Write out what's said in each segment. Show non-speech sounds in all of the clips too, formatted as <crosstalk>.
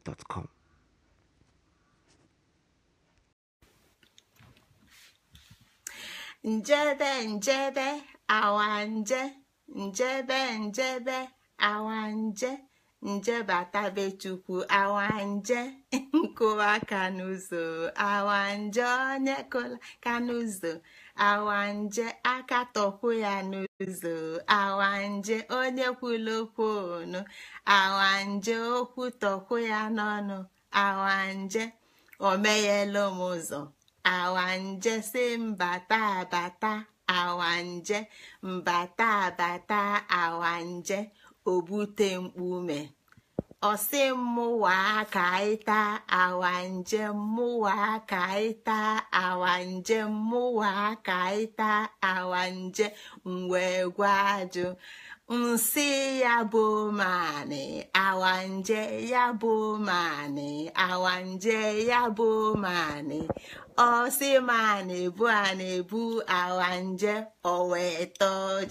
njebe Njebe njebe nje njebe njebe awanje nje awanje <laughs> kanuzo awa nje onye kụla kanuzo. awanje aka tọkwu ya n'ụzọ awanje onye kwulu okwu awanje okwu tọkwu ya n'ọnụ awanje omeyela m ụzọ awanje si mbata abata awanje mbata abata awanje obute mkpume ọsị mmụwa ka awa njem mụwa ka ịta awa njem mụwa ka ịta awa njem mgbe gwa ajụ nsị ya bụ manị awa nje ya bụ manị awa nje ya bụ manị ọsị manị bụ a na-ebu awa nje owe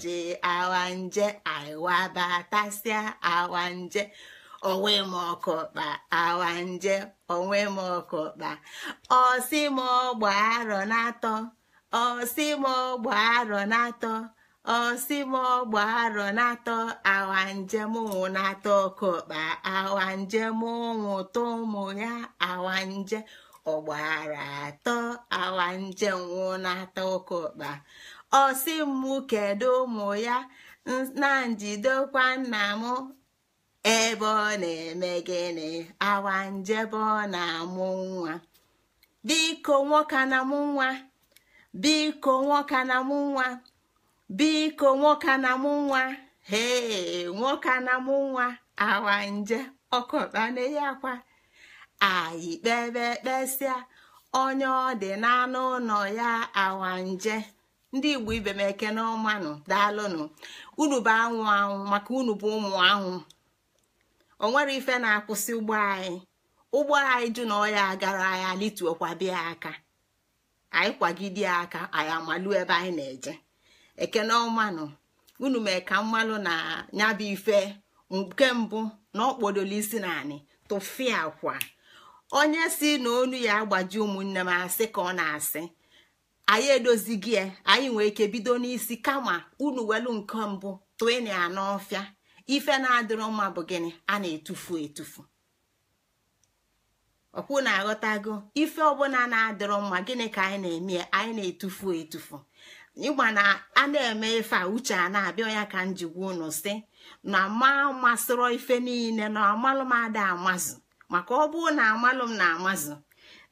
ji awa nje aiwabatasịa awa nje onwe m ọkụkpa awa nje onwe m ọkụkpa ọsị m ọgba arọ n'atọ ọsị m ọgba arọ n'atọ ọsị m ọgba arọ n'atọ awa njem ụmụ n'atọ ọkụkpa awa njem ụmụ tụ ụmụ ya awa nje ọgbara atọ awa njem nwụ n'atọ ọkụkpa ọsị m kedu ụmụ ya na njidekwa nna m ebe ọ na-eme gịnị awa njebe ọ na-amụ nwa biko nwoke na mụ nwa biko nwoke na mụ nwa biko nwoke na mụ nwa hee nwoke na mụ nwa awa nje ọkọtana ya kwa anyị kpebe kpesịa onye ọ dị n'anụ ụlọ ya awa nje ndị igbo ibe m eke n'ọmanụ daalụnụ unu bụ anwụ anwụ maka unu bụ ụmụ anwụ o nwere ife na-akwụsị ụgbọ anyị ụgbọ anyị ju na ọya agara anyị alituokwa bịa aka anyị kwagide aka anyị amalu ebe anyị na-eje ekene omanu unu mee ka mmalụ na nyabu ife nke mbụ na ọkpọdolo isi naanị tụfịa kwa onye si na onu ya agbaji ụmụnne m asị ka ọ na-asị anyị edozighị ya anyị nwee ike bido n'isi kama unu welu nke mbụ tụịna ya n'ọfịa ife na-adịrọ mma bụ gịnị a na-etufu etufu ọkwụ na-aghọtago ife ọbụla na-adịrọ mma gịnị ka anyị na-eme anyị na-etufu etufu ịgba na a na-eme ife a uche a na-abịa ya ka m gwuo unu si na ma masịrọ ife niile na amalụm ada amazụ maka ọ bụrụ na amalụm na amazụ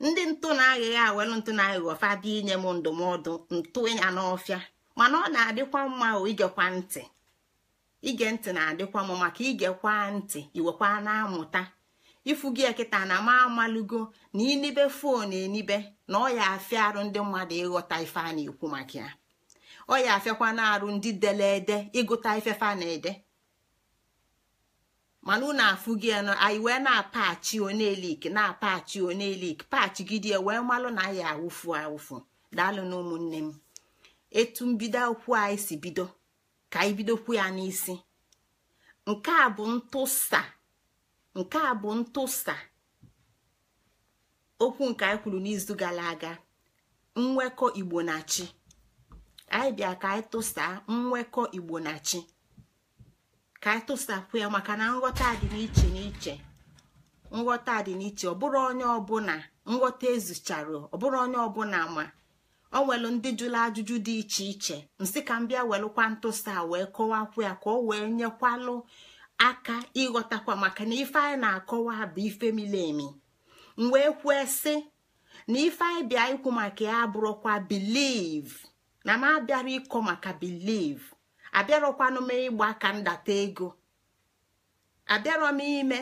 ndị ntụ na-aghịghị awelụ ntụ na-aghịghị ọfa bịa inye m ndụmọdụ ntụ ya n'ọfịa mana ọ na-adịkwa mma o igekwa ntị ige ntị na-adịkwa m maka igekwa ntị iwekwa na-amụta ifu gị kịta na ma amalugo na inibe fon enibe na ọ ya afịa arụ ndị mmadụ ịghọta ife a na-ekwu maka ya ọ ya afịakwa na-arụ ndị dele ede ịgụta ifefa na-ede mana unu afụ gị nọ anyị wee na-apachi onelik na-apachi onelik pachi gidie wee malụ na aya awụfu awụfu daalụ na ụmụnne m etu mbido akwụkwọ anyị si bido ka anyị bidokwu ya n'isi nke a bụ ntụsa nke a bụ ntụsa okwu nke anyị kwuru n'izu gara aga nwekọ igbo na chi anyị bịa ka anyị tụsa nwekọ igbo na chi ka anyị tụsakwu ya maka na nghọta dị n'iche n'iche nghọta dị n'iche ọ bụrụ onye ọbụla nghọta ezuchara ọ bụrụ onye ọbụla ma ọ nwere ndị jụrụ ajụjụ dị iche iche nsị ka m bịa welụkwa ntụsa wee kọwakwu ya ka ọ wee nyekwalụ aka ịghọtakwa maka na ife anyị na-akọwa bụ ife mili emi m wee kwue sị na ife anyị bịa ikwu maka ya abụrụkwa biliv na m abịara ịkọ maka biliv abịarọkwanụ m ịgba aka ndata ego abịarọ ime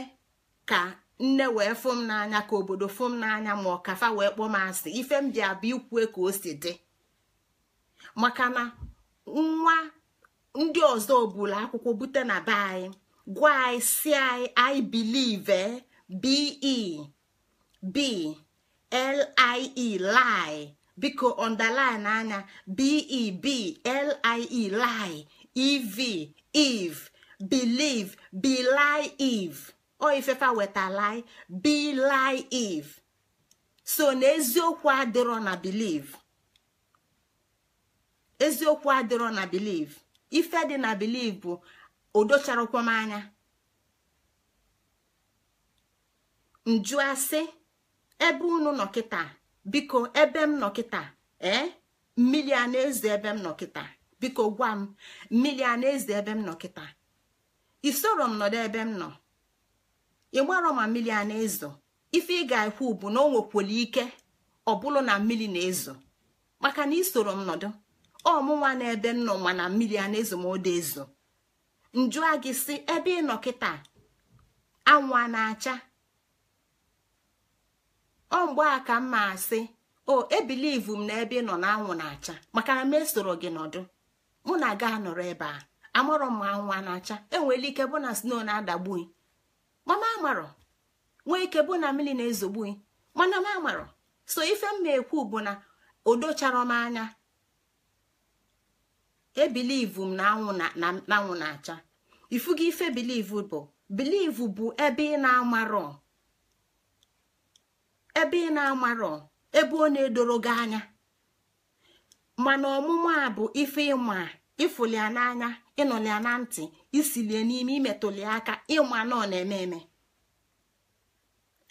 ka nne wee fụ m n'anya ka obodo fụ m n'anya ma ọkafa wee kpọọ m asị ife m bịa bụ ikwue ka o si dị maka na nwa ndị ọzọ bụla akwụkwọ bute na be anyị gwa anyị si anyị i eh? be b lie lie biko underline anya beb e, e, lie lie ev eve believe belie eve ọ ifefa lie be bilai iv so na eziokwu adịrọ na biliv eziokwu adịrọ na believe ife dị na believe bụ odocharakwa m anya njụasị asị ebe unu nọ kịta biko ebe m nọ kịta ee eh? mmiri a na ebe m nọ kịta biko gwa m mmiri a na ebe m nọ kịta isoro m nọdụ ebe m nọ ịgbarọ ma mmiri a na-ezo ife ị ga-ekwu bụ na o nwekwere ike ọ bụrụ na mmiri na-ezo maka na isoro m nọdụ ọmụnwa na ebe nọ ma na mmiri a na-ezo ma ode ezo njụa a gị si ebe ị nọ kịta anwụ a na-acha ọ mgbe a ka mma asị o ebilivu m na ebe ị nọ na anwụ na-acha maka na m esoro gị nọdụ mụ na ga anọrọ ebe a amarọ m anwụ a na-acha enwere ike bụ na sno na-adagbu mama amarọ nwee ike bụ na mmiri na-ezogbu mana ma amarọ so ife m na-ekwu bụ na odochara m anya ebilivu m na anwụ na acha ifu acha ife bilivu bụ bilivu bụ ebe ị na-amarọ ebe ị na-amarọ na-edoro gị anya mana ọmụma a bụ ife ịma ịfụli ya n'anya ịnụli ya na ntị isilie n'ime imetụli aka ịma na na-eme eme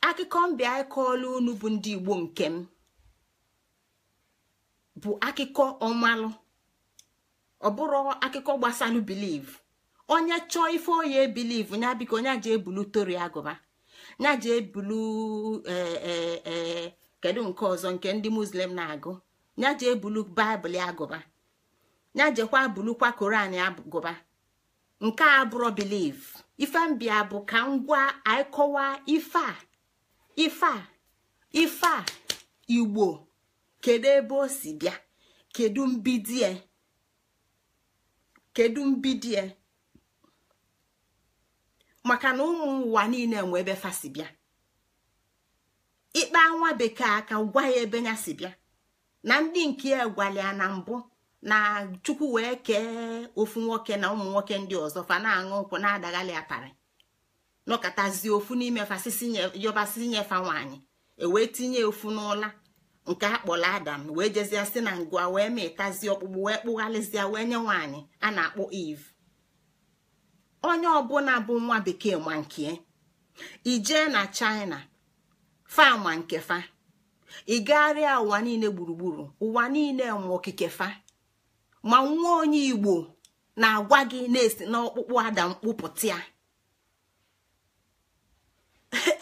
akụkọ mbịa ịkọọla unu bụ ndị igbo nke m bụ akụkọ ọmalụ ọ bụrụ akụkọ gbasalụ biliv onye chọọ ife onye biliv ya biko ya ji ebulu tori agụba ya ji ebulu e, e, e, kedu nke ọzọ nke ndị muslim na-agụ nya ji ebulu baịbụl agụba ya jekwa bulukwa koran ya gụba nke a bụrụ biliv ife mbịa bụ ka ngwa ịkọwa ife a ife a ife a igbo kedu ebe o si bịa kedu mbidie kedu e? maka na ụmụ ụwa niile nwe ebe fa si bịa ikpe anwa bekee aka gwa ya ebe ya si bịa na ndị nke ya gwala na mbụ na chukwu wee kee ofu nwoke na ụmụ nwoke ndị ọzọ fa na-aṅụ nkwụ na-adaghali apari nọkọtazie ofu n'ime yọbasị nyefa nwaanyị ewee tinye ofu n'ụla nke akpọrọ adam wee jezie si na ngwa wee ma ịtazi ọkpụkpụ wee kpụgharịzịa wee nye nwaanyị a na-akpọ eve onye ọbụla bụ nwa bekee ma nke e. ijee na china fa ma nke fa ịgagharịa ụwa niile gburugburu ụwa niile ma okike fa ma nwa onye igbo na-agwa gị na-esi n'ọkpụkpụ ada mkpụpụta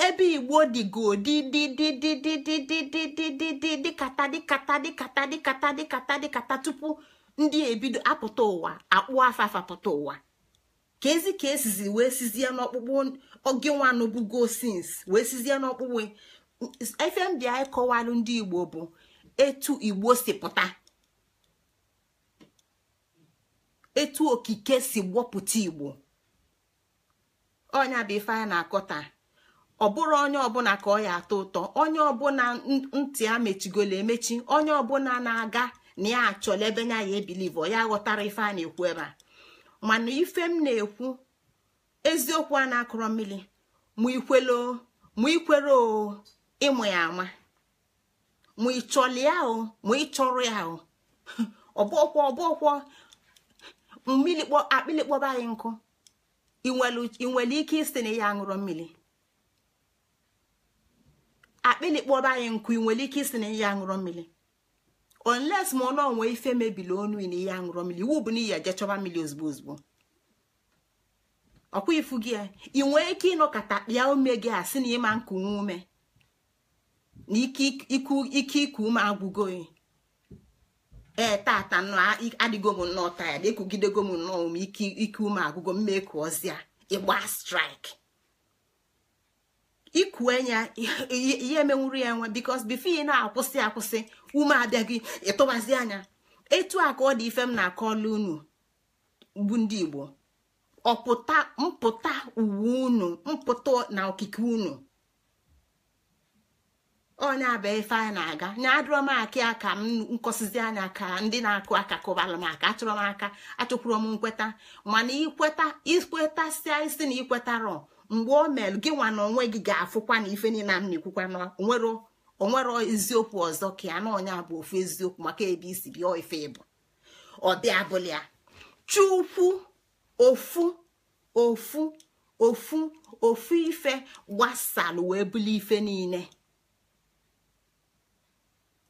ebe igbo dịgo dịdịdịdịdịdịdịdịdịdịdịkata di di tupu ndị ebido apụta ụwa akpụ afafa pụta ụwa ka ezi ka esizi wee sizie n'ọkpụkpụ oge nwanụbugo sins wee sizie n'ọkpụkpụ ife m anyị kọwalụ ndị igbo bụ etu igbo si pụta etu okike si gbọpụta igbo ọnya bụ ife a na-akọta ọ bụrụ onye ọbụla ka ọ ya atọ ụtọ onye ọbụla ntị a mechigolo emechi onye ọbụla na-aga na ya achọla ebe ya ya ebilive ọ ya ghọtara ife a na-ekwu ebe a mana ife m na-ekwu eziokwu a na-akọrọ mmiri mụ ikwere o ịmụ ya ama mụ ịchọrọ ya o <laughs> mmiri akpịlị kpọba anyị nkụ ị nwere ike isi na ya aṅụrụ mmiri akpịlị kpọba anyị nkụ ị nwere ike isi na ya aṅụrụ mmiri onles ma ọnụ onwe ife mebili onu na ihe aṅụrụ mmiri iwu bụ na iyi mmiri ozugbo ozugbo ọkwa ifu gị ị nwere ike ịnọkọta kpịa ume gị a sị na ịma nku ume na ike iku ume agwụgo ee tata adịgo m nnọọ na ekwugidego m nnọọ m ike ume agụgụ mma ekuozie ịgba strik ikue ya ihe emenwuru ya nwa bikos bifo ị na-akwụsị akwụsị ume abịaghị ịtụbazi anya etu a ka ọ dị ife m na-akọla unu bụ ndị igbo ọpụta mpụta uwe unu mpụta na okike unu onye aba ife a na-aga na adụrọ m akị aka m nkọsizi anya ka ndị na-akụ aka kụbara m aka achọrọ m aka achọkwuru m nkweta mana ikweta ikwetasia isi na ikwetarọ mgbe o mere gị nwa na onwe gị ga-afụkwa na ife niile m na-ekwukwa na onwere eziokwu ọzọ ka ya na onye bụ ofu eziokwu maka ebe isi bịa ife ịbụ ọ dị abụla ya chukwu ofu ofu ofu ofu ife gbasalụ wee buli ife niile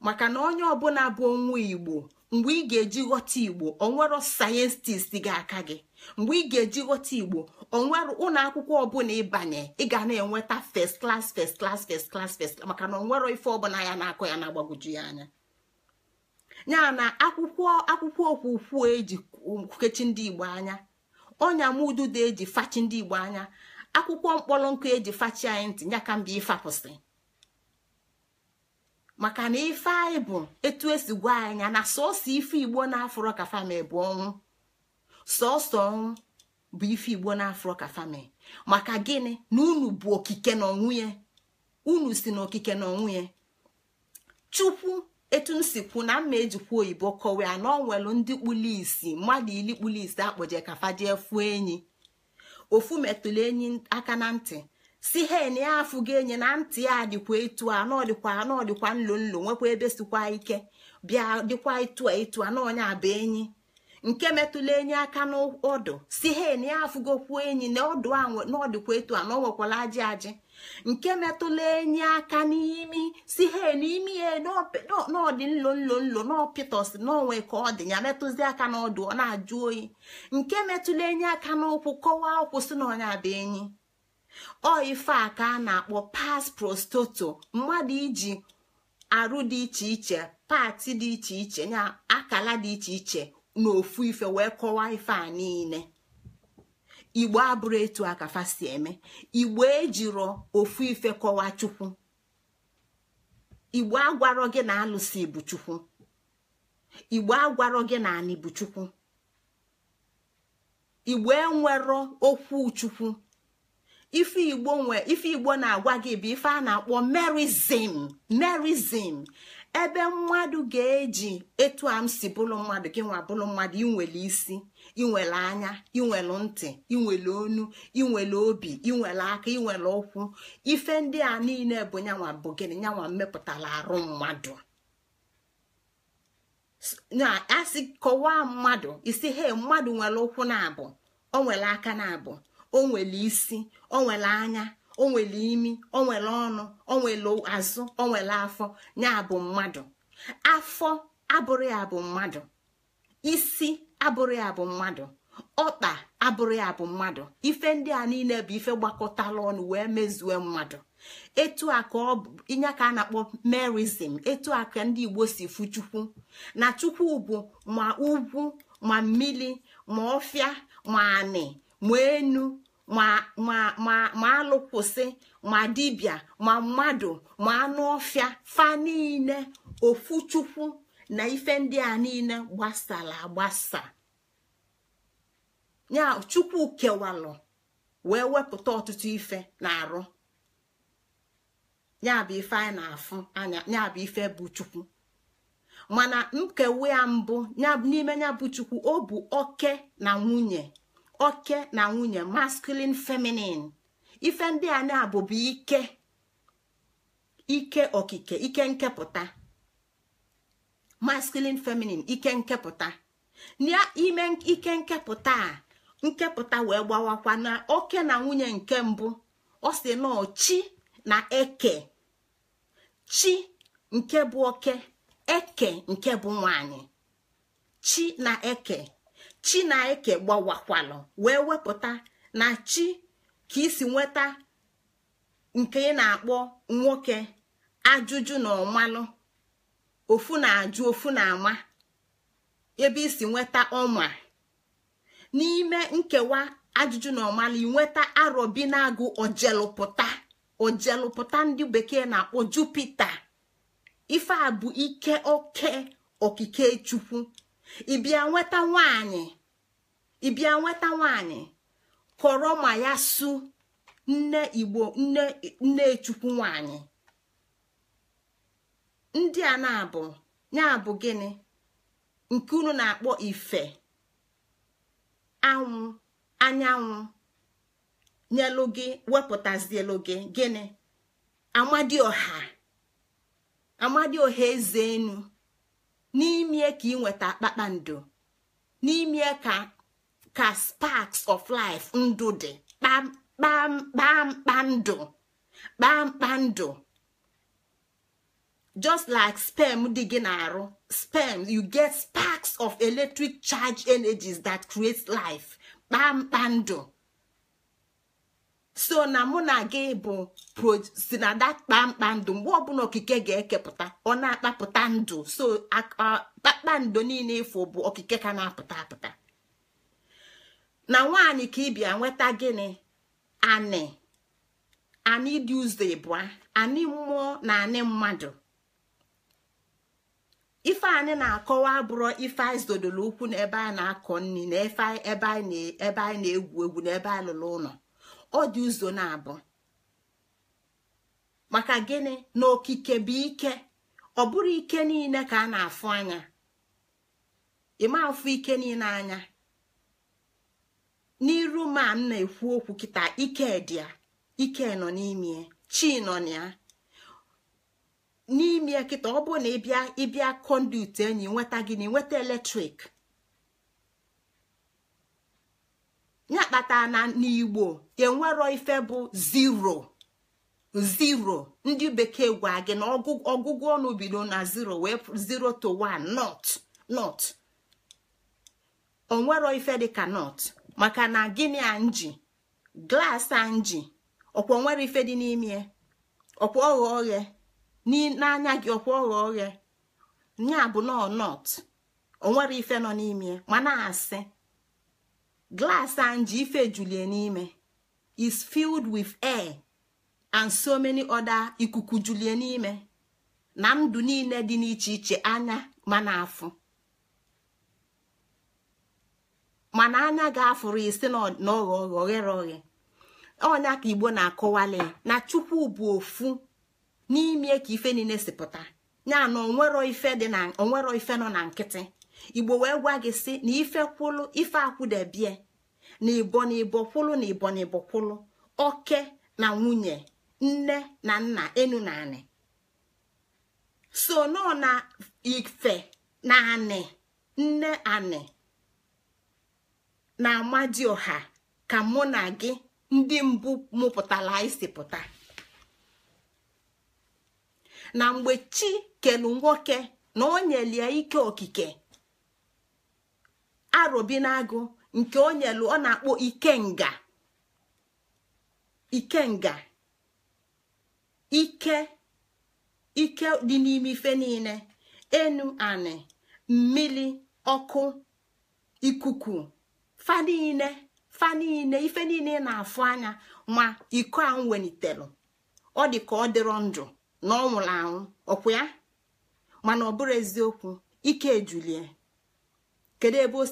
maka na onye ọbụla bụ onwe igbo mgbe ị ga-eji ghọta igbo onwero sayentist ga-aka gị mgbe ị ga-eji ghọta igbo onwere ụlọ akwụkwọ ọbụla ịbanye ị ga na-enweta first class first klas first class first maka na onwero ife ọbụla ya na-akọ ya na-agbagwoju ya anya ya na akwụkwọ akwụkwọ okwukwu eji kechi ndị igbo anya ọnya mududo eji fachi ndị igbo anya akwụkwọ mkpọrọ nkụ eji fachi anyị ntị nyaka ka mbe ifapụsị maka na ife anyị bụ etu esi gwa anya na sọsọ ife igbo na-afụrọ ka fami bụ ọnwụ sọsọ ọnwụ bụ ife igbo na-afụrọ ka fami maka gịnị na unu bụ okike na ọnwụ ya unu si na okike na ọnwụ ya chukwu etu m si kwu na mma ejikwa oyibo kọwaa na ọ nwelu ndị kpuli isi mmadụ ili kpuli isi akpọje kafa jee fuo enyi ofu metụlụ enyi aka na ntị si hen ya afụ gị enye na ntị ya dịkwa etu a n'ọdịkwa n'ọdịkwa nlo nlo nwekwa ebe sikwa ike bịa dịkwa etu a etu a n'ọnya bụ enyi nke metụla enyi aka n'ọdụ si hen ya afụgokwuo enyi na ọdụ a n'ọdịkwa etu a na ọ ajị ajị nke metụla enyi aka n'imi si hen imi ya n'ọdị nlo nlo nlo n'ọpịtọsị n'onwe ka ọ dị ya metụzi aka n'ọdụ ọ na-ajụ oyi nke metụla enyi aka n'ụkwụ kọwaa ụkwụ si na ọnya bụ enyi ọ ife a ka a na-akpọ pas prostoto mmadụ iji arụ dị iche iche pati dị iche iche na akala dị iche iche na ofu ife wee kọwaa ife a niile igbo abụrụ etu akafa si eme igbo ejiro ofu ife kọwaa chukwu igbo agwarọ gị na alụsị bụ chukwu igbo agwarọ gị na anị bụ chukwu igbo enwero okwu chukwu ife igbo nwe ife igbo na-agwa gị bụ ife a na-akpọ merizim merizim ebe mmadụ ga-eji etu a m si bụrụ mmadụ gị nwa mmadụ inwele isi inwele anya inwele ntị inwele onu inwele obi inwele aka inwele ụkwụ ife ndị a niile bụ nyanwa bụ gịnị nyanwa mmepụtara arụ mmadụ na-asị kọwaa mmadụ isi he mmadụ nwere ụkwụ na-abụ o nwere aka na-abụ o nwere isi o nwere anya o nwere imi o nwere ọnụ o nwere azụ o nwere afọ ya bụ mmadụ afọ abụrụ ya bụ mmadụ isi abụrụ ya bụ mmadụ ọkpa abụrụ ya bụ mmadụ ife ndị a niile bụ ife gbakọtala ọnụ wee mezue mmadụ etu a ka ọ bụ inye ka a na-akpọ merizim, etu a ka ndị igbo si fu chukwu na chukwu bụ ma ugwu ma mmiri ma ọfịa ma anị ma enu ma alụkwụsị ma dibịa ma mmadụ ma anụ ọfịa fa niile ofu chukwu na ife ndị a niile gbasara agbasa ya chukwu kewalụ wee wepụta ọtụtụ ife na-arụ ya bụ ife anyị na-afụ anya ya bụ ife bụ chukwu mana nkewa ya mbụ n'ime ya bụ chukwu ọ bụ oke na nwunye oke na nwunye masculine feminine ife ndị a na-abụbu ike ike okike ike nkepụta masculine feminine ike nkepụta ime ike nkepụta a nkepụta wee gbawakwa na oke na nwunye nke mbụ ọ si na chi na eke chi nke bụ oke eke nke bụ nwanyị chi na eke chi eke gbawakwalụ wee wepụta na chi ka isi nweta nke ị na-akpọ nwoke ajụjụ na ọmalụ ofu na-ajụ ofu na-ama ebe isi nweta ọma n'ime nkewa ajụjụ na ọmalụ inweta arọbi na-agụ ojelụpụta ojelụpụta ndị bekee na-akpọ jupita ife ike oke okike chukwu ịbịa nweta nwanyị ịbịa nweta nwanyị kọrọ ma ya su nne igbo nne nne chukwu nwanyị ndị a na-abụ ya bụ gịnị nke unu na-akpọ ife anwụ anyanwụ nyelu gị wepụtazielu gị gịnị amadi ọha eze enu n'ime ka ị nweta kpakpando n'ime ka ka sparks of life ndụ dị kpamkpamkpa ndụ just like sperm dị gị na-arụ sperm you get sparks of electric charge energies that create life kpamkpa so na mụ na gị bụ si na da kpamkpa ndụ mgbe ọbụla okike ga-ekepụta ọ na-akpapụta ndụ so kpakpando niile ifo bụ okike ka na-apụta apụta na nwaanyị ka ịbịa nweta gịnị anị anị dị ụzọ ịbụa anị mmụọ na anị mmadụ ife anyị na-akọwa bụrụ ife anyị zodoro ukwu n'ebe a na-akọ nri na ebe anyị na-egwu egwu n'ebe anyị lụrụ ụlọ ọ dị ụzọ na-abụ maka gịnị na okike bụ ike ọ bụrụ ike niile ka a na-afụ anya ịma afụ ike niile anya n'iru ma m na-ekwu okwu kịta ike ike nọ n'ime chi nọ n'ime kịta ọ bụrụ na ịbịa ịbịa kọnduit enyi nweta gị na eletrik ya kpata na n'igbo enwero ife bụ zero zero ndị bekee gwa gị na ọgwụgwọ ọnụ bido na zero wee zero to one not not onwero ife dịka not maka na gịnị anji glaasị anji ọkwa onwere ife dị n'ime ya ọkwa ọghọ oghe n'anya gị ọkwa ọghọ oghe nya bụ nọ not onwere ife nọ n'ime ya ma na asị glass ji ife julie n'ime is filled with air and so many other ikuku julie n'ime na ndụ niile dị n'iche iche anya mana afụ mana anya ga-afụrụ isi n'ọghọ oghere oghe onya ka igbo na-akọwali na chukwu bụ ofu n'ime ka ife niile si pụta ya na onwere ife no na onwero na nkịtị igbo wee gwa gị sị na ife kwụlụ ife akwụdebie na ibo na ibo kwụlụ na ibo na ibo kwụlụ oke na nwunye nne na nna enu na anị so nọ na ife na anị nne anị na amadioha ka mụ na gị ndị mbụ mụpụtara isi pụta na mgbe chi kelu nwoke na o nyelie ike okike arobinagụ nke o nyelu ọ na-akpọ ikenga ikenga ike ike dị n'ime ife niile enu anị mmiri ọkụ ikuku fa niile fa niile ife niile na-afụ anya ma iko ahụ welitelu ọ dị ka ọ dịrọ ndụ na ọ nwụrụ anwụ ọkwụ ya mana ọ eziokwu ike ejulie kedu ebe o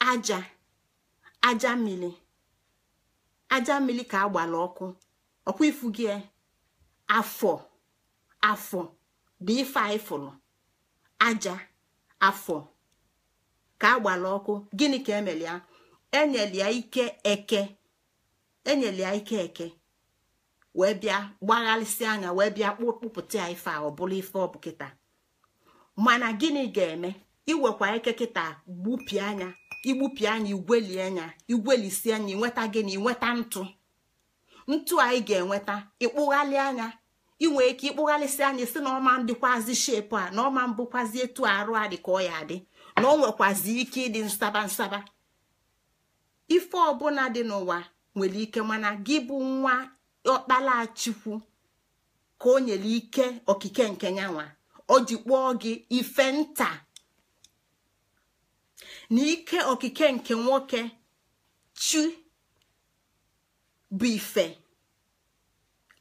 aja aja mmiri aja mmiri ka agbala ọkụ ọkwa ifu gị e? afọ afọ dị ife anyị fụrụ aja afọ ka agbala ọkụ gịnị ka emelia e ya ike eke enyere ike eke wee bịa gbagharịsị anya wee bịa kpụpụta ya ife a ọ bụla ife ọ kịta mana gịnị ga-eme iwekwa ike kịta gbupie anya igbupie anya igweli anya igwelisi anya inweta gị na inweta ntụ ntụ anyị ga-enweta ịkpụghalị anya inwe ike ịkpụghalịsị anya si na ọma dịkwazi shepu a na ọma mbụkwazi etu arụ a ka ọ ya dị na ọ nwekwazi ike ịdị nsaba nsaba ife ọbụla dị n'ụwa nwere ike mana gị bụ nwa ọkpala ka o nyere ike okike nke nyanwa o ji kpọọ gị ife nta na ike okike nke nwoke chi bụ ife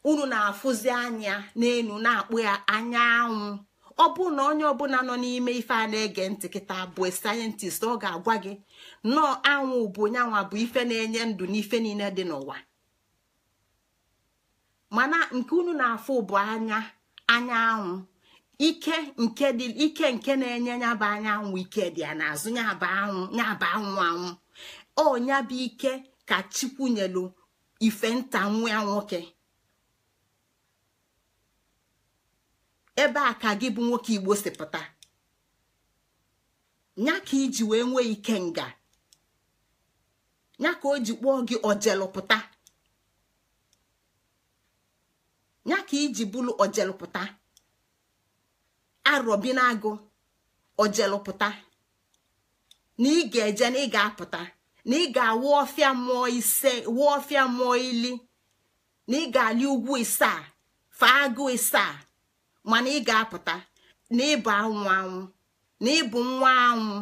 unu na-afụzi anya n'elu na-akpụ ya anya anwụ ọ bụ na onye ọbụla nọ n'ime ife a na-ege ntị kịta bụ sayentist ọ ga-agwa gị nnọọ anwụ bụ onyanwa bụ ife na-enye ndụ n'ife niile dị n'ụwa mana nke unu na-afụ bụ anya anya anwụ ike nke dị ike nke na-enye ya anyanwụ ike dị ya n'azụ ya bụ anwụ ya anwụ anwụ ọ ya ike ka chukwu nyelu ife nta nwa ya nwoke ebe a ka gị bụ nwoke igbo si pụta nya ka iji wee nwee ike nga nya ka o ji kpọọ gị ojelụpụta nya ka iji bụlụ ojelụpụta arọbi na-agụ ojelụpụta na ị ga-eje na ị ga-apụta na ị ga-awụ ọfịa mmụọ ili na ị ga-alị ugwu isaa faa agụ isaa mana ị ga-apụta na ịbụ anwụ anwụ na ịbụ nwa anwụ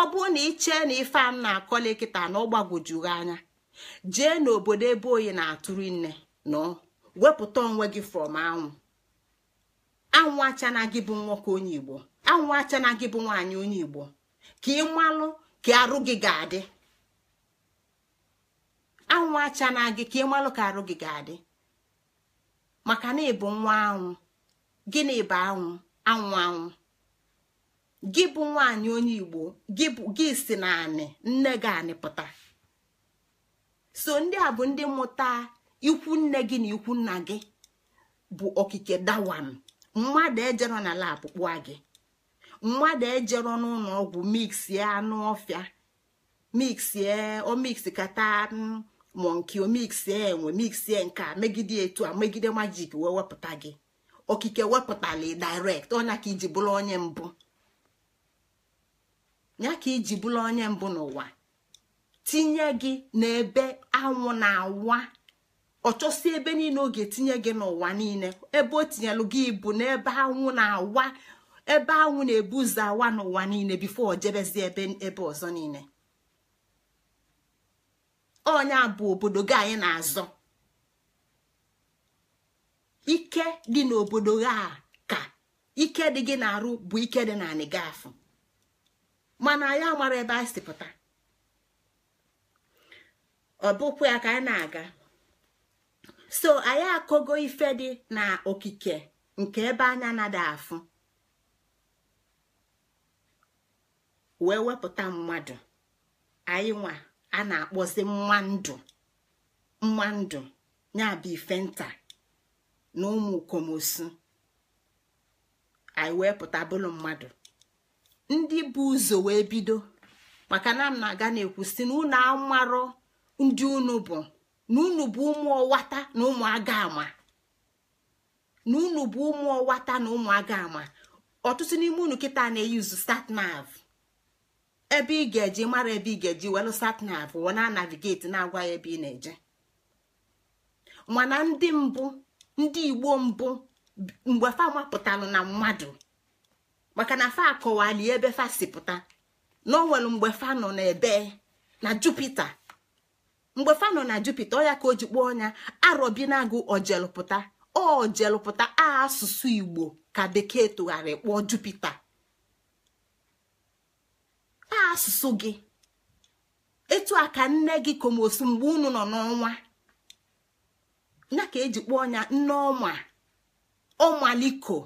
ọ bụrụ na ichee na ife m na-akọli kịta na ọ anya jee n'obodo ebe oyi na-atụrụ nne nọ wepụta onwe gị from anwụ anwụ achana gị bụ nwoke onye igbo anwụ achana gị bụ nwaanyị onye igbo ka ị malụ ka arụ gị ga-adị gị ka ị malụ ka arụ gị ga-adị maka na ịbụ nwa anwụ na ịbụ anwụ anwụ anwụ gị bụ nwaanyị onye igbo gị si na anị nne gị anị pụta so ndị a bụ ndị mụta ikwu nne gị na ikwu nna gị bụ okike dawam mmadụ ejero na lab kpụa gị mmadụ ejero n'ụlọ ọgwụ miksie anụ ọfịa miksie omiks kata mm, monki omiksie enwe miksie nke a megide etu a megide majik wee wepụta gị okike wepụtala direct ọnya ka iji bụrụ onye mbụ ya ka iji bụrụ onye mbụ n'ụwa tinye gị n'ebe anwụ na-awa ọ chọsi ebe niile oge tinye gị n'ụwa niile ebe o tinyelụ gị bụ n'ebe anwụ na ebe anwụ na-ebu ụzọ awa n'ụwa niile bifo o jebezi ebe ebe ọzọ niile Ọnya bụ obodo gị anyị na-azọ ike dị n'obodo gị a ka ike dị gị na-arụ bụ ike dị na anị gị mana anyị amara ebe anyị si pụta ọ ya ka anyị na-aga so anyị akọgo ife dị na okike nke ebe anya nada afụ wee wepụta mmadụ anyị nwa a na-akpọzi mmadụ ndụ ya bụ ife nta na ụmụ komosu anyị wee pụta bụlụ mmadụ ndị bụ ụzọ wee bido maka na m na-aga na-ekwu si na unu ndị unu bụ na unu bụ ụmụ ọwata na ụmụ aga ama na unu bụ ụmụ ọwata na ụmụ aga ama ọtụtụ n'ime unu kịta na-eyuzu statnav ebe ị ga-eji mara ebe ị ga-eji welu satnav wọ na navigeti na-agwa ya ebe ị na-eje mana ndị mbụ ndị igbo mbụ mgbe fa mapụtalụ na mmadụ maka na fa akọwali ebe fa si pụta na o nwere mgbe fa nọ ebe na jupiter mgbe fano na jupiter ya ka o ji kpụọ ọnya arobinagụ ojelụpụta ojelụpụta asụsụ igbo ka bekee tụgharị kpọọ jupiter asụsụ gị etu a ka nne gị komosu mgbe unu nọ n'ọnwa ya ka eji kpọọ ọnya nne ọma ọmaliko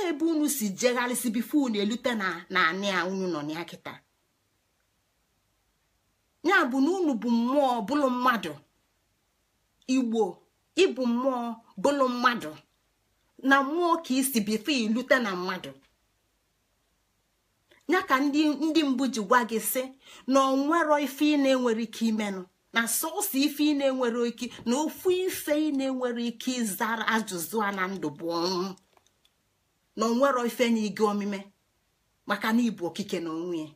ebe unu si jegharịsi bifo unu elute na anị a unu nọ ya kịta ya bụ na unu bụ mmụọ bụlụ mmadụ igbo ịbụ mmụọ bụlụ mmadụ na mmụọ ka isi bifo ilute na mmadụ ya ka ndị mbụ ji gwa gị sị na onwero ife ị na-enwere ike imenụ na sọsọ ife ị na-enwere ike na ofu ife ị na-enwere ike ịzara ajụjụ a na ndụ bụ ọnwụ na onwero ife na gị omime maka na ibu okike na onwe ya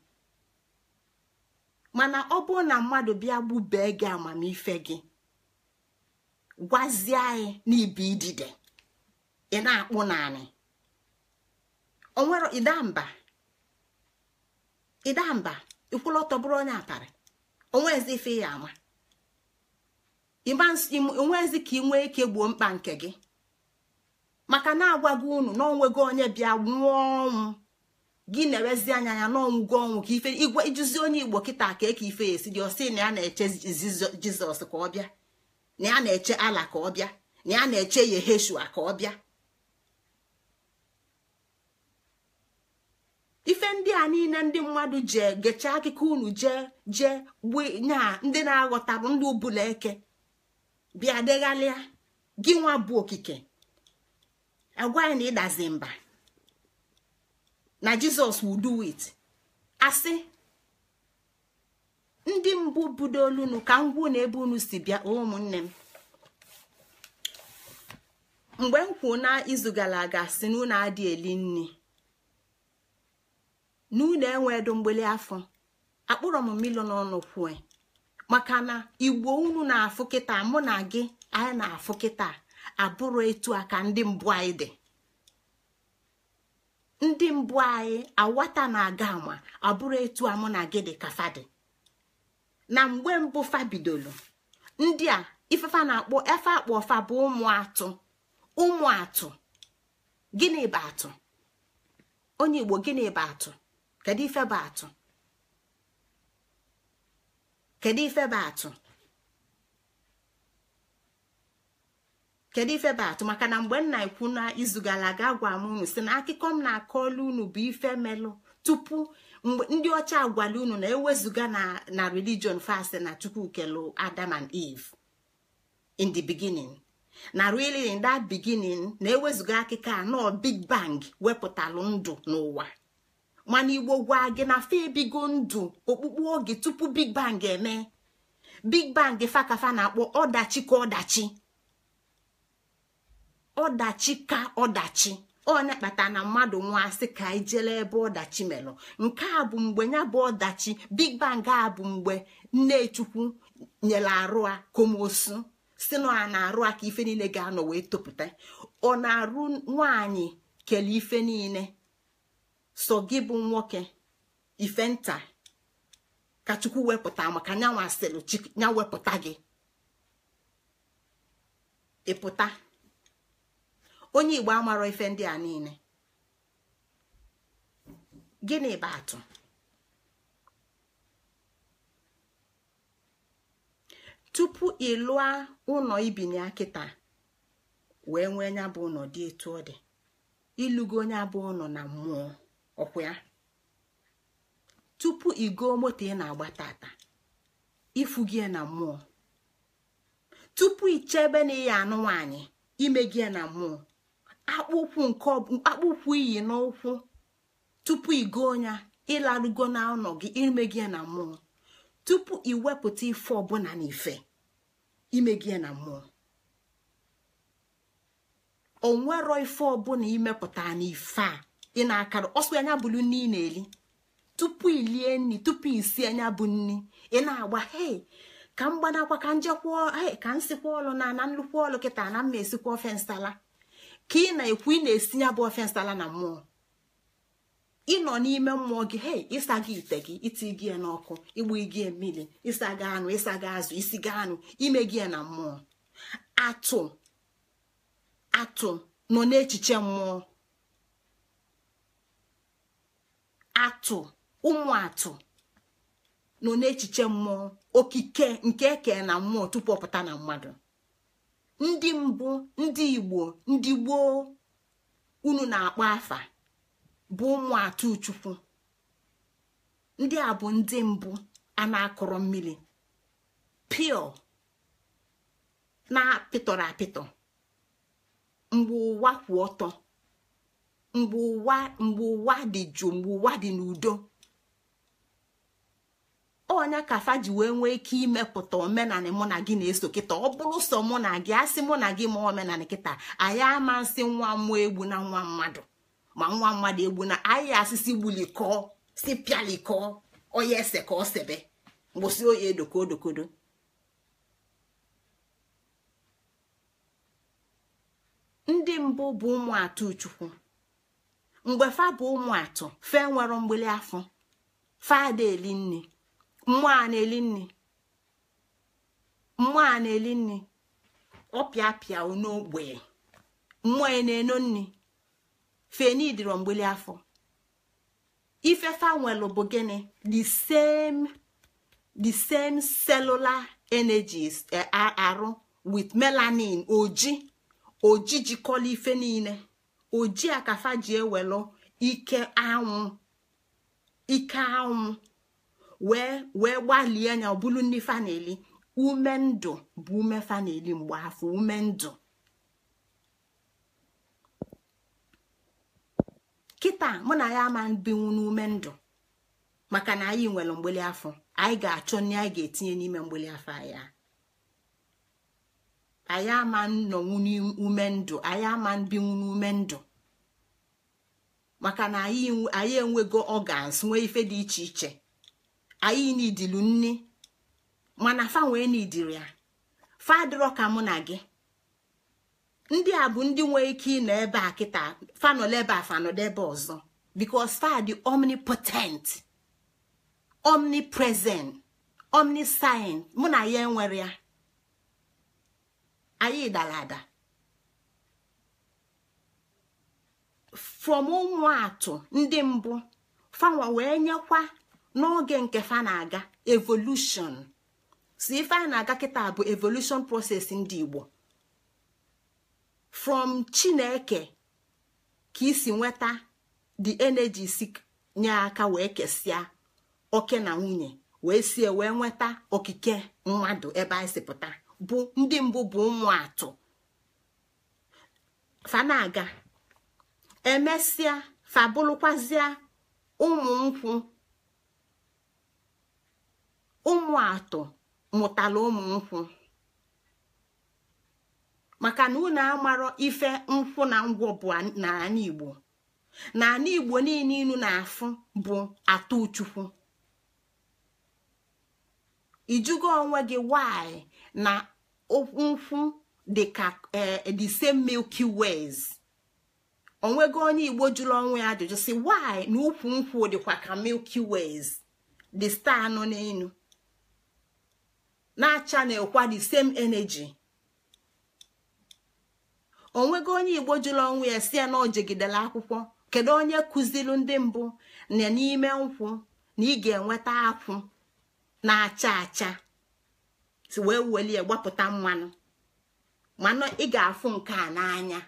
mana ọ bụrụ na mmadụ bịa gbubee gị amamife gị gwazie anyị n'ibi idide ị na-akpụ naanị onwere ịdamba ịdamba ịkwụlọ ọtọ bụrụ onye atarị onwezi ife ya ama onwezi ka ị nwee ike gbuo mkpa nke gị maka na-agwa unu na onwego onye bịa nwụọ ọnwụ gị na-ewezi anya ya gwa ọnwụ ka ife igwe ijuzi onye igbo kịta ka eke ife esi dị ọsị na ya na-eche jizọs ka ọ bịa na ya na-eche ala ka ọ bịa na ya na-eche yeheshua ka ọ bịa ife ndị a niile ndị mmadụ je gechaa akụkọ unu jee jee gbue nyaa ndị na-aghọtabụ ndị ubula eke bịa deghalịa gị nwa bụ okike agwa ya na ịdazi mba na jizọs will do it asị ndị mbụ budo olunu ka m gwuo ebe unu si bịa ụmụnne m mgbe m kwuo na izu gara aga si n'ụlọ adị eli nri N'ụlọ unu mgbeli afọ akpụrọ m mmiri n'ọnụ kwue maka na igbo unu na-afụ kịta mụ na gị anyị na-afụ kịta abụrụ etu a ka ndị mbụ anyị dị ndị mbụ anyị awata na-aga ama abụrụ etu amụ na gị dị ka fadị na mgbe mbụ bidoro, ndị a ifefa na-akpọ efe akpọ fa bụ ụmụ atụ ụmụ atụ gịnị bụ atụ onye igbo gịnị bụ atụ kedu ife bụ atụ kedu ife bụ atụ kedu ife bụ atụ maka na mgbe nna ikwu na izu gara aga gwa m unu si na akụkọ m na-akọọla unu bụ ife melụ tupu ndị ọcha agwala unu na ewezuga na religion fast na chukwu kelu adam and eve in the beginning na really in that beginning na ewezuga akụkọ anọ big bang wepụtalụ ndụ n'ụwa mana igbo gwa gị na fe ebigo ndụ okpukpu oge tupu big bang eme big bang fakafa na-akpọ ọdachi ka ọdachi ọdachi ka ọdachi onye kpatara na mmadụ nwaasị ka anyị e jela ebe ọdachi melụ nke a bụ mgbe ya bụ ọdachi big bang a bụ mgbe nnechukwu nyere arụ a komosu si na ọ na-arụ a ka ife niile ga-anọ wee topụta ọ na-arụ nwaanyị kele ife niile so gị bụ nwoke ife nta ka chukwu wepụta maka nyanwa asịrị gị ịpụta onye igbo amarọ ife ndị a niile gịnị bụ atụ tupu ịlụa ụlọ ibinye akịta wee nwee nya bụ ụlọ dị etu ọ dị ilugo onye bụ ụlọ na mmụọ ọkwa ya tupu igo moto ị na-agba tata ifugie na mmụọ tupu chebe na ịya anụ nwaanyị ime gị na mmụọ akpụkwụ nke akpụkwụ iyi n'ụkwụ tupu igo onya ịlarugo na ụlọ gị ime gị na mmụọ tupu iwepụta ife ọbụla na ife ime gị na mmụọ onwero ife ọbụla imepụta na ife a ị na-akara ọsọ anya bụlu nni ị na-eli tupu ilie nri tupu isi anya bụ nni ị na-agba hei ka m gbanakwa ka njekwa ka m sikwa ọlụ na na nnukwu ọlụ kịta na mma esikwa ofe nsala ka ị na-ekwu ị na-esi ya bụ ofensi na mmụọ ịnọ n'ime mmụọ gị hey, ịsa gị ite gị iti gị ya n'ọkụ igbu gị mmiri ịsa gị anụ ịsa gị azụ isi gị anụ ime gị na mmụọ atụ atụ nọ n'echiche mmụọ atụ ụmụ atụ nọ n'echiche mmụọ okike nke eke na mmụọ tupu ọ pụta na mmadụ ndị mbụ ndị igbo ndị gboo unu na-akpọ afa bụ ụmụ atụchukwu ndị a bụ ndị mbụ a na-akọrọ mmiri pio na-apịtọrọ apịtọ mgbe ụwa kwụ ọtọ mgbe ụwa mgbe ụwa dị jụụ mgbe ụwa dị n'udo ọnya kafa ji wee nwee ike imepụta omenanị mụ na gị na-eso kịta ọ bụrụ sọ mụ na gị asị mụ na gị ma omenanị kịta anyị ama nsị nwa mmụọ egbu na nwa mmadụ ma nwa mmadụ egbu na anyị asịsị gbulikọọ si pịalikọọ onye ese ka ọ sebe gbụsị oyi edokodokodo ndị mbụ bụ ụmụatụ chukwu mgbe fa bụ ụmụ fe nwere mgbili afọ fada eli nne mmụọ a na-eli nni mmụọ a na-eli nri ọ pịa pịa n'ogbe mmụọ ya e na-eno nri feni dịrọ mgbeli afọ ife nwelụ bụ gịnị the same the same cellular energies e, arụ with melanin oji oji jikọla ife niile oji akafa ji ewelụ ike anwụ ike anwụ wee wee gbalie anya ọ bụrụ ndị faneli ume ndụ bụ ume faneli mgbe afọ ume ndụ kịta mụ na ya ama binwu n'ume ndụ maka na anyị nwere mgbeli afọ anyị ga-achọ nri anyị ga-etinye n'ime mgbeli afọ ya. anyị ama nnọnwu n'ume ndụ anyị ama n'ume ndụ maka na anyị enwego organs nwee ife dị iche iche anyị nidilu nni mana fa wee nidiri ya fa adịrọ ka mụ na gị ndị a bụ ndị nwee ike ịnọ ebe a kịta fanọlebe a fanọdebe ọzọ because fa dị omnipotent omnipresent omniscient mụ na ya enwere ya anyị dara ada from ụmụ atụ ndị mbụ fanwa wee nyekwa n'oge nke fa na-aga evolushon si ife a na-aga kịta bụ evolushon proses ndị igbo from chineke ka isi nweta the energy si nye aka wee kesịa oke na nwunye wee sie wee nweta okike mmadụ ebe anyị sipụta bụ ndị mbụ bụ ụmụ atụ fanaga emesịa fabụlụkwazịa ụmụ nkwụ ụmụ atọ mụtara ụmụ nkwụ maka na unu amarọ ife nkwụ na ngwọ bụ n'ala igbo n'ala igbo niile inu na-afụ bụ atọ uchukwu ijugo onwe gị nwanyị na nkwụ dịka eh, the milki milky onwego onye igbo jụrụ onwe ya ajụjụ si why na ukwu nkwụ dịkwa ka milki ways the star nọ n'elu na channel kwa the same energy onwego onye igbo jụrụ ọnwụ ya si ya na ojegidela akwụkwọ kedu onye kụziri ndị mbụ na n'ime nkwụ na ị ga-enweta akwụ na-acha acha si wee welie gbapụta mmanụ mana ị ga-afụ nke a n'anya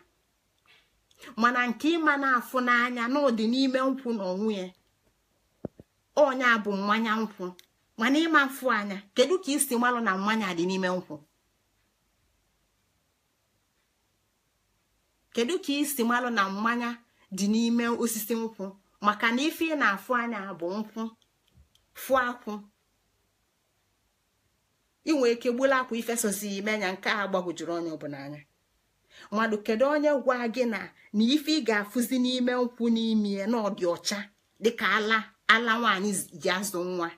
mana nke ịma na-afụ n'anya n'ụdị n'ime nkwụ na onwe ya onya bụ mmanya nkwụ mana ịma mfụ anya kedu ka isi malụ na mmanya dị n'ime nkwụ kedu ka isi malụ na mmanya dị n'ime osisi nkwụ maka na ife ị na-afụ anya bụ nkwụ fụ akwụ inwe ike gbula akwa ifesozi ime anya nke a gbagwojuru onye ọbụla anya mmadụ kedu onye gwa gị na na ife ị ga-afụzi n'ime nkwụ n'ime na ọ dị ọcha dịka ala ala nwaanyị ji azụ nwa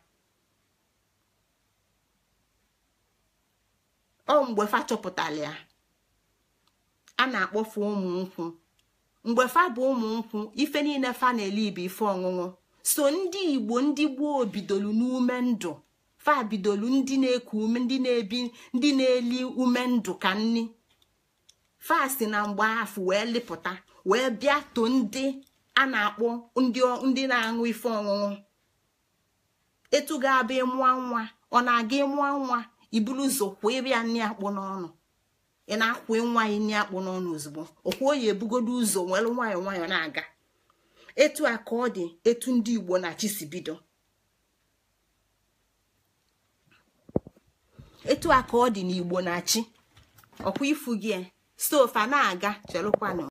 ọ mgbe fa chọpụtara ya a na fa ụmụ nkwụ mgbe fa bụ ụmụ nkwụ ife niile fa na-ele ibe ife ọṅụṅụ so ndị igbo ndị gboo bidolu n'ume ndụ fa bidolu ndị na-eku ume ndị na-ebi ndị na-eli ume ndụ ka nni fa si na mgbe afụ wee lịpụta wee bịa to ndị a na-akpọ ndị na-aṅụ ife ọṅụṅụ etu ga abụ ịmụọ nwa ọ na-aga ịmụọ nwa iburu ụzọ kwụọ ebe ya nri akpụ n'ọnụ ị na-akwụ nwaanyị nne akpụ n'ọnụ ozugbo ọkwụo ya ebugodo ụzọ nwere nwayọọ nwayọọ na-aga etu a ka ọ dị etu ndị igbo na-achị si bido etu a ka ọ dị na igbo na-achị ọkwa ifu gị e. stovu a na-aga chelụkwanụ